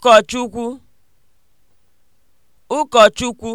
ụkọchukwu ụkọchukwu